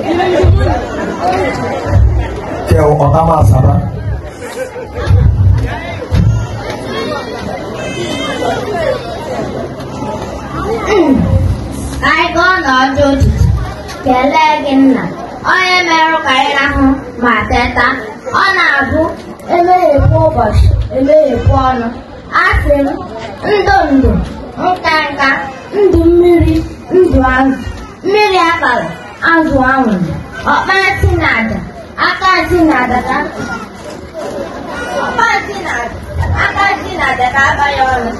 anyị ka ojiji kelee gị nna onye merụ karịrị ahụ ma teta ọ na-abụ emeghekwa ụbọchị emeghekwa ọnụ asị ndụ ndụ nke nka ndụ mmiri ndụ azụ anwụrụ ọkpara tinada aka tinada ka ọkpara aka tinada ka aba ya ọnụ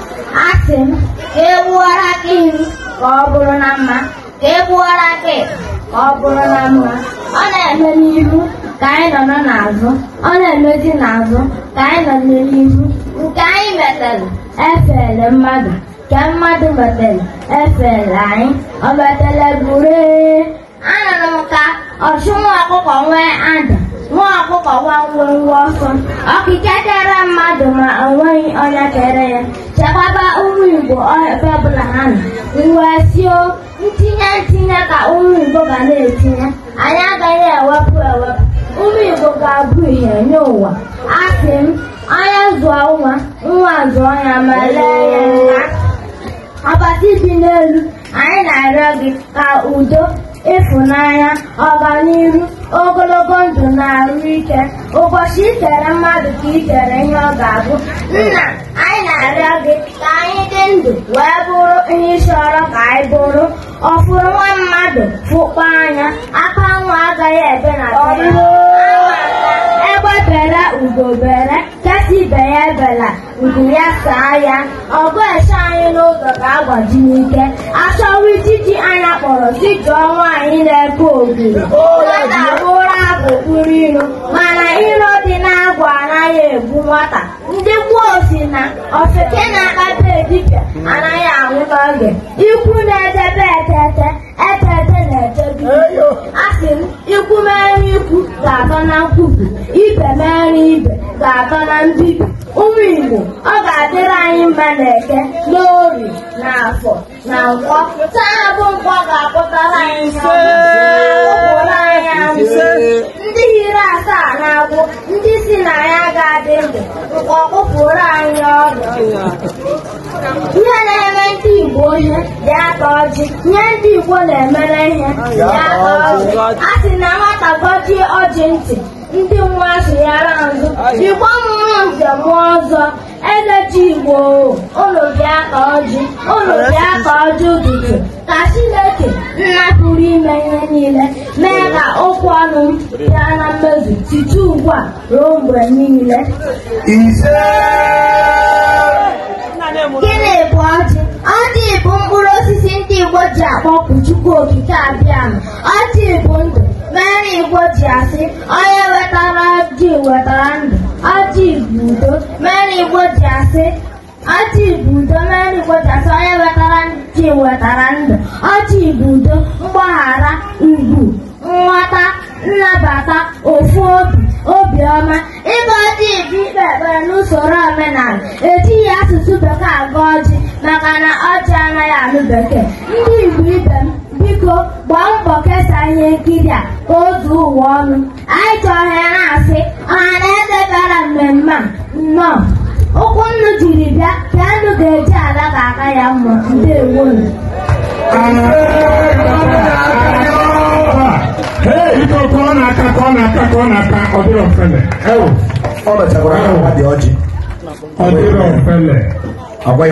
asị m ka egbuora aka ihu ka ọ bụrụ na mma ka egbuora aka ka ọ bụrụ na mma ọ na-eme n'ihu ka anyị nọ n'ọ n'azụ ọ na-emezi n'azụ ka anyị nọ n'ihu nke anyị metere efere mmadụ nke mmadụ metere efere anyị ọ metere bụrụ anụrụ m ka ọchụ nwa ọkụkọ nwee ada nwa ọkụkọ gwangwongwo ọsọ ọkịka kere mmadụ ma o nweghị onye kere ya chekwaba ụmụ Igbo ebe ọbụla ha nọ wee sio ntinye ntinye ka ụmụ Igbo ga na-etinye anyị agaghị ewepụ ewepụ ụmụ Igbo ga-abụ ihe nye ụwa asị m onye zụọ nwa nwa zụọ ya ma lee ya Ọbata dị n'elu anyị na-arịọ gị ka udo ịfụnanya ọganihu ogologo ndụ na arụ ike ụbọchị ikere mmadụ ka ikere ihe ọ ga-abụ nna anyị na-arịọ gị ka anyị dị ndụ wee bụrụ ihe ịchọrọ ka anyị bụrụ ọfụrụ nwa mmadụ fụkpa anya aka nwa agaghị ebe na egbe bere ugo bere nkesi ibe ya ebela ugo ya saa ya ọgụ eche anyị n'ụzọ ga-agbaji n'ike achọwa mụrụ dịka ọnwa anyị na-epe ogiri nwata bụ ụra bụkpuru ilo mana ilo dị n'agwụ anaghị ebu nwata ndị gboo si na ofeke na-akpata edipịa anaghị anwụ n'oge ikwu na-edebe ete atọ na mbibi ụmụ Igbo ọ ga-adịrị anyị mba na eke na na afọ na nkwọ taa bụ nkwọ ga-akpụtara anyị ụụrụ anyị anwụ ndị hiri asaa na-agwụ ndị si na ya ga-adị ndụ nkwọ kpụpụrụ anyị ọrụ ihe na-eme ndị Igbo ihe dị aka ọjị nye ndị Igbo na-emere ihe dị aka ọjị a sị na nwata gọjie ọjị ntị ndị nwa sịghara azụ jikwa mmụọ njem ọzọ eze igbo ụlọ bịa ka ọjị ụlọ bịa ka ọjị ụtụtụ ka chineke nna pụrụ ime ihe niile mee ka okwu ọnụ m bịa na mmezu site ugbu a ruo mgbe niile gịnị bụ ọjị ọjị bụ mkpụrụ osisi ndị igbo ji akpọpụ chukwu okike abịa ọjị bụ ndụ mere igbo ji asị onye wetara ndụ ajọ ibudo udo mere igbo ji ajọ mere onye wetara ji wetara ndụ ajọ ibudo udo mgbaghara ugwu nghọta nnabata ofu obi obiọma ịba ọjị ibe ikpe ekpere n'usoro omenala etighị asụsụ bekee agụ ọjị maka na ọjị anaghị anụ bekee ndị igbo ibe nkiri a o zuo ụwa ọnụ anyị chọrọ ya na-asị ọha na eze bịara mmemme nnọọ ụkwụ nnu jiri bịa ka nnu ga-eji ala ga-aka ya mma ndewo ọ